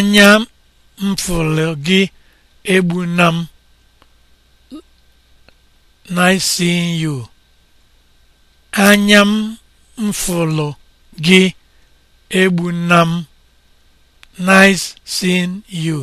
anya m nice gị egbu anya m mfụlụ gị egbuna nice seeing you